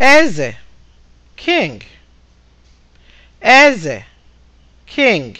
eze king eze king